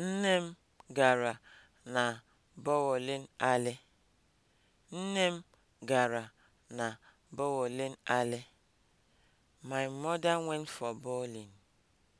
Nne m gara na bowling alley. Nne m gara na bowling alley. My mother went for bowling.